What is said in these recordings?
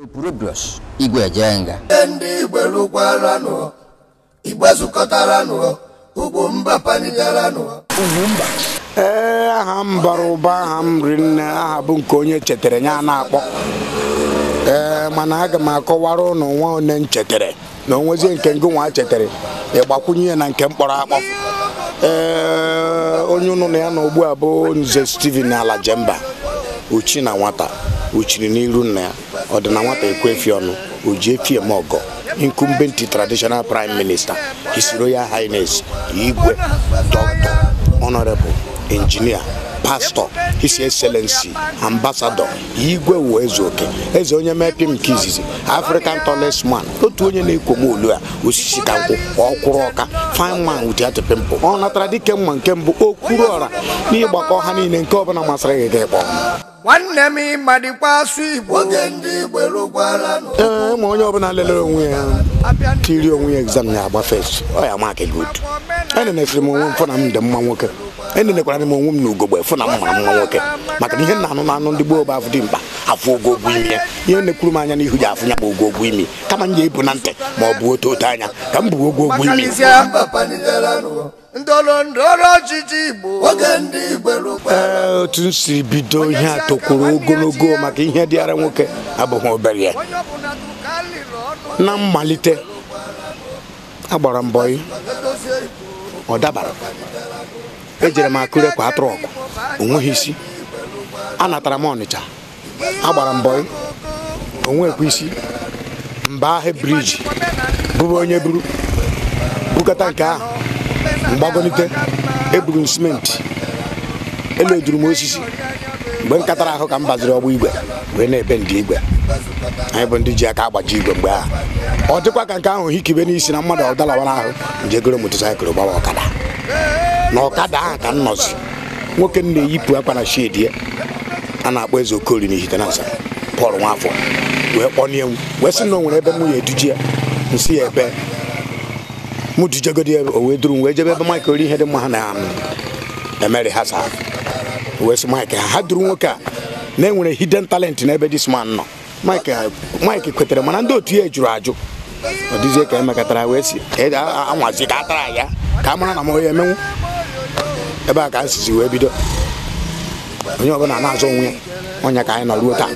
Opuro Bros Igwe Ejenga ndị Igwe lụkwaranụ Igwe zukọtaranụ ugwu mba panigaranụ ugwu mba ee aha m bara ụba aha m ri aha bụ nke onye chetere ya na-akpọ ee mana aga m akọwara ụnụ nwa one m chetere na onwezie nke ngụ nwa chetere ịgbakwunye na nke mkpọrọ akpọ ee onye ụnụ na ya na ugbu a bụ Nze Steven Alajemba ochi na nwata uchiri n'iru nna ya ọ dị na nwata ekwefi ọnụ o ji efi eme ọgọ traditional prime minister his royal highness igwe dr honorable injinia. pastọ his excellency ambassadọ igwe wụ eze oke eze onye mepe m nke izizi african tallest otu onye na-ekwo olu a osisi ka nkwụ ọkwụrụ ọka fine man with that ọ natara dike mma nke mbụ okwuru ọra n'ịgbakọ ha niile nke ọbụla masịrị gị gị kpọọ nwanne m ịma dịkwa asụ igbo ee ma onye ọbụla lelere onwe ya tiri onwe ya egzam ya agbafe ọ ya maakị good enenefere m onwe m na m dị mma nwoke enelekwara m onwe m na ugogbe fụ na m hụrụ mma nwoke maka na ihe na-anụ ndị gboo bụ afụ dị mkpa afụ ogo imi ya ihe na-ekwuru m anya n'ihu ji afụ ya bụ ogo ogwu imi kama m ga-ebu na ntị ma ọ bụ otu otu anya ka m bụ ogo imi otu m si bido ihe a tokwuru ogologo maka ihe dịara nwoke abụghị obere ya na mmalite agbara mbọ ọ dabara ejere m akụre kwa trọkụ onweghị isi anatara m Ọnịcha agbara mbọ onwekwa isi mba ahụ briji bụrụ onye buru bukata nke ahụ mgbagonite eburu m simenti elu m osisi mgbe m katara ahụ ka m gbaziri ọgba igwe wee na-ebe ndị igwe anyị bụ ndị ji aka agbaji igwe mgbe ahụ ọ dịkwa ka nke ahụ hikibe n'isi na mmadụ ọdalawara ahụ njegoro motosaịkụl gbawa ọkada na ọkada ahụ ka m nọzi nwoke m na-eyipụ akwa na shedi ya a na-akpọ eze okori na ihitenansa pọl nwafọ wee kpọnie m wee sị na o ebe m ya eduje ya nsị ya ebe m dujegodi o wee duru m wee jebe ebe maịk ori ihe dị mma ha na emeri ha saa wee sị maịk ha ha duru nwoke a na enwere hidden talent n'ebe dis man nọ maịk kwetere mana ndị otu ya jụrụ ajụ ọ dịzie ka emekọtara wee si anwazi ka a tara ya ka a mara na m onye emenwu ebe a ka anyị sizi wee bido onye ọbụla na-azụ onwe ya ka anyị nọ ruo taa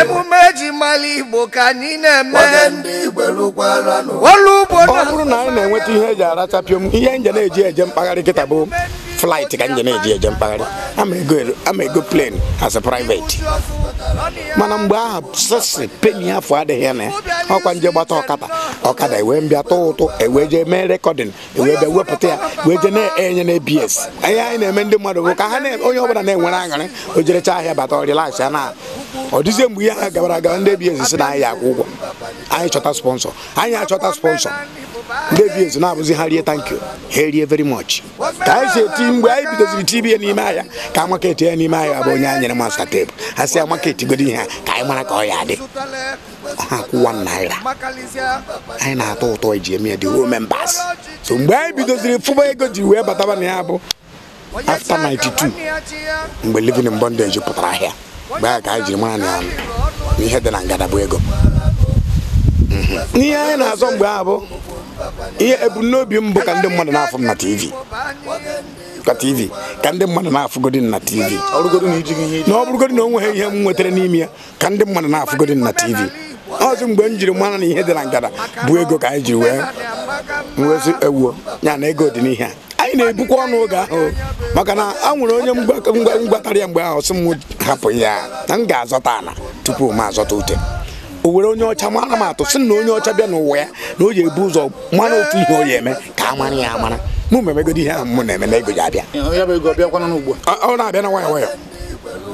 emume eji mala igbo ka anyị na-eme ọlụ ugbo ọ bụrụ na anyị na-enweta ihe eji aracha ihe nje na-eji eje mpaghara kịta bụ flight ka nje na-eji eje mpaghara ama ego plane as a private mana mgbe aha sesi peni afọ adịghị na ya ọkwa nje gbata ọkata ọkada ewee mbịa tụ ụtụ ewee jee mee rekọdịn ewee bịa wepụta ya wee je na-enye na a ihe anyị na-eme ndị mmadụ bụ ka ha onye ọbụla na-enwere aṅụrị o ahịa bata ọrịlax ya na ọ dịzie mgbe ihe ha gabara agaba ndị ABS si na anyị akwụ ụgwọ anyị chọta sponsọ anyị achọta sponsọ mkpebi ezo na-abụzi ha rie thank you ha erie very much ka anyị si eti mgbe anyị bidoziri tibie n'ime ahịa ka amaket ya n'ime ahịa bụ onye anyị nyere masta tebụl ha si amaket godo ihe ha ka anyị mara ka ọ ya dị ha akwụ kwụwa naira anyị na-atọ ụtọ iji eme ya dị ruo so mgbe anyị bidoziri fụba ego ji wee bataba na ya bụ after 92 mgbe Livin in bondage pụtara ahịa mgbe ahụ ka anyị jiri mara na n'ihe dị na ngada bụ ego n'ihe anyị na-azọ mgbe ahụ bụ ihe ebumnobi m bụ ka ndị mmadụ na afọ m na TV ka TV ka ndị mmadụ na-afụgodi na TV na ọ bụrụgodi na o nweghị ihe m nwetara n'ime ya ka ndị mmadụ na-afụgodi na TV ọzọ mgbe m jiri mara na ihe dị na ngada bụ ego ka anyị jiri wee ewuo ya na ego dị n'ihe a anyị na-ebukwa ọnụ oge ahụ maka na a nwere onye mgbatara ya mgbe ahụ sị m hapụ ya na m ga-azọta ala tupu m azọta ute o were onye ọcha mara m atụ sị na onye ọcha bịa n'ụwa ya na o ji ebu ụzọ mara otu ihe o yi eme ka a mara ya amara mụ ma ihe ahụ m na-eme na ego ya abịa ọ na-abịa na nwayọ nwayọ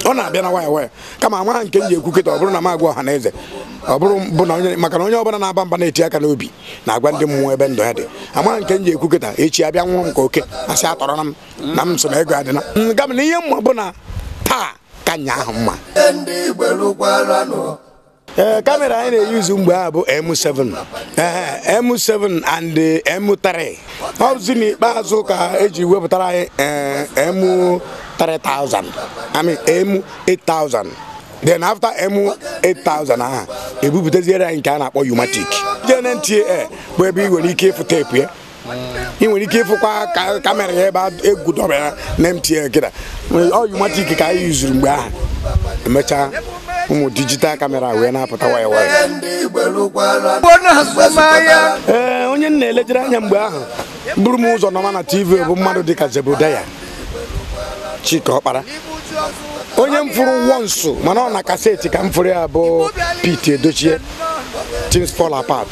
ọ na-abịa na nwayọ nwayọ kama ama nke m ji ekwu kịta ọ bụrụ na m agwa ọha na eze ọ bụrụ bụ na maka na onye ọbụla na-aba mba na-eti aka n'obi na-agwa ndị mmụọ ebe ndụ ya dị ama nke m ji ekwu kịta echi abịa nwụrụ m ka oke asị atọrọ na m na m so na ego adịla nga na ihe mma bụ na taa ka nnya ahụ mma ee eh, kamera anyị na-eyuzu mgbe a bụ M7 eh, M7 and eh, M3 ọ bụzi n'ikpeazụ ka eji wepụtara anyị M3000 M8000 then after M8000 aha ebupụtaziere anyị nke a na-akpọ Umatic JNTA bụ ebe ị nwere ike ịfụ teepu ya ị nwere ike ịfụkwa kamera ya ebe egwu dọbara na MTA kịta ọ Umatic ka anyị yuzuru mgbe ahụ emechaa ụmụ dijital kamera wee na-apụta waya waya ee onye m na-elejere anya mgbe ahụ bụrụ m ụzọ nọma na tv bụ mmadụ dịka Zebudaya chika Ọkpara onye m fụrụ wonsu mana ọ na kaseti ka m fụrụ ya bụ pit Edochie things fall apat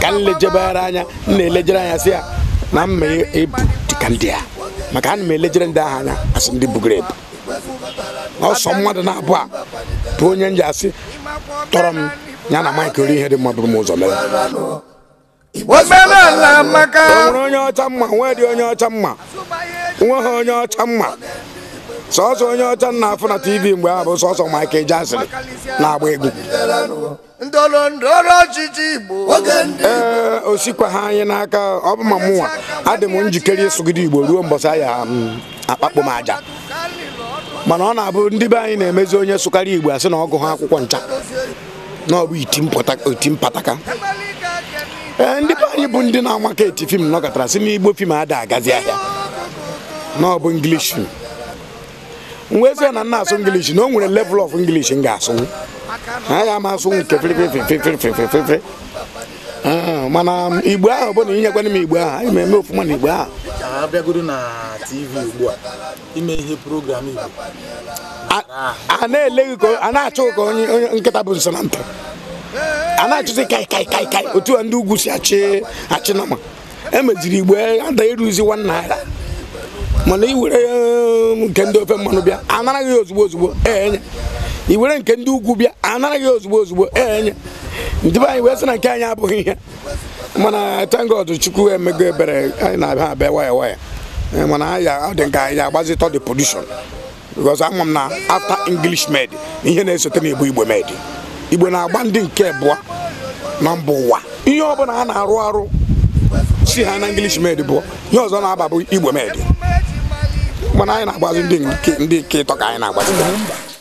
ka m lejebere anya m na-elejere anya si ya na mma ebu dịka ndị a maka na m elejere ndị ahụ anya asị ndị bugoro ebu ọsọ mmadụ na-abụ a bụ onye m ji asị tọrọ m ya na maịk ori ihe dị mma bụrụ m ụzọ mere nwere onye ọcha mma nwee dị onye ọcha mma nwe ha onye ọcha mma sọsọ onye ọcha na-afụ na tv mgbe ahụ bụ sọsọ maịk eji asịrị na-agba egwu ee osikwa ha anyị n'aka ọ bụ ma mụnwa adị m njikere ịsụgide igbo ruo mbọsị aya mm, akpakpo m aja mana ọ na-abụ ndị be anyị na-emezi onye sukari igbo asị na ọgụ ha akwụkwọ ncha na ọ bụ iti mpataka ee ndị be anyị bụ ndị na-amaka eti fim nọkọtara sị n'igbo fim ada agazi ahịa na ọ bụ English fim ezie na nna asụ English na o nwere level of English m ga-asụ a ya ama asụ nke Ah, mana igbo ahụ bụ na inyekwana m igbo ahụ anyị eme ofuma na igbo ahụ abịagoro na tv ugbu a ime ihe program igbo a na-ele gị a na-achụ ka onye nkịta bụ nso na ntị a na-achụzi kai kai kai kai otu a ndị ugwu si achị achị nama emeziri igbo ada ịrụzi nwa naira mana iwere um, nke ndị ofe mmanụ bịa anara gị ozugbo ozugbo enye iwere nke ndị ugwu bịa anara gị ozugbo ozugbo enye ndibe anyị wee sị na nke anyị abụghị ihe mana tengod chukwu emego ebere anyị na-abịa abịa waya waya eh, mana ọ dị nka anyị agbazitọ the production because ama m na after english med ihe na-esote na igbo igbo med igbo na-agba ndị nke bụa na mba ụwa ihe ọ bụla ha na-arụ arụ si ha na english med bụ ihe ọzọ na-aba bụ igbo med mana anyị na-agbazi ndị nke ịtọ ka anyị na-agbazi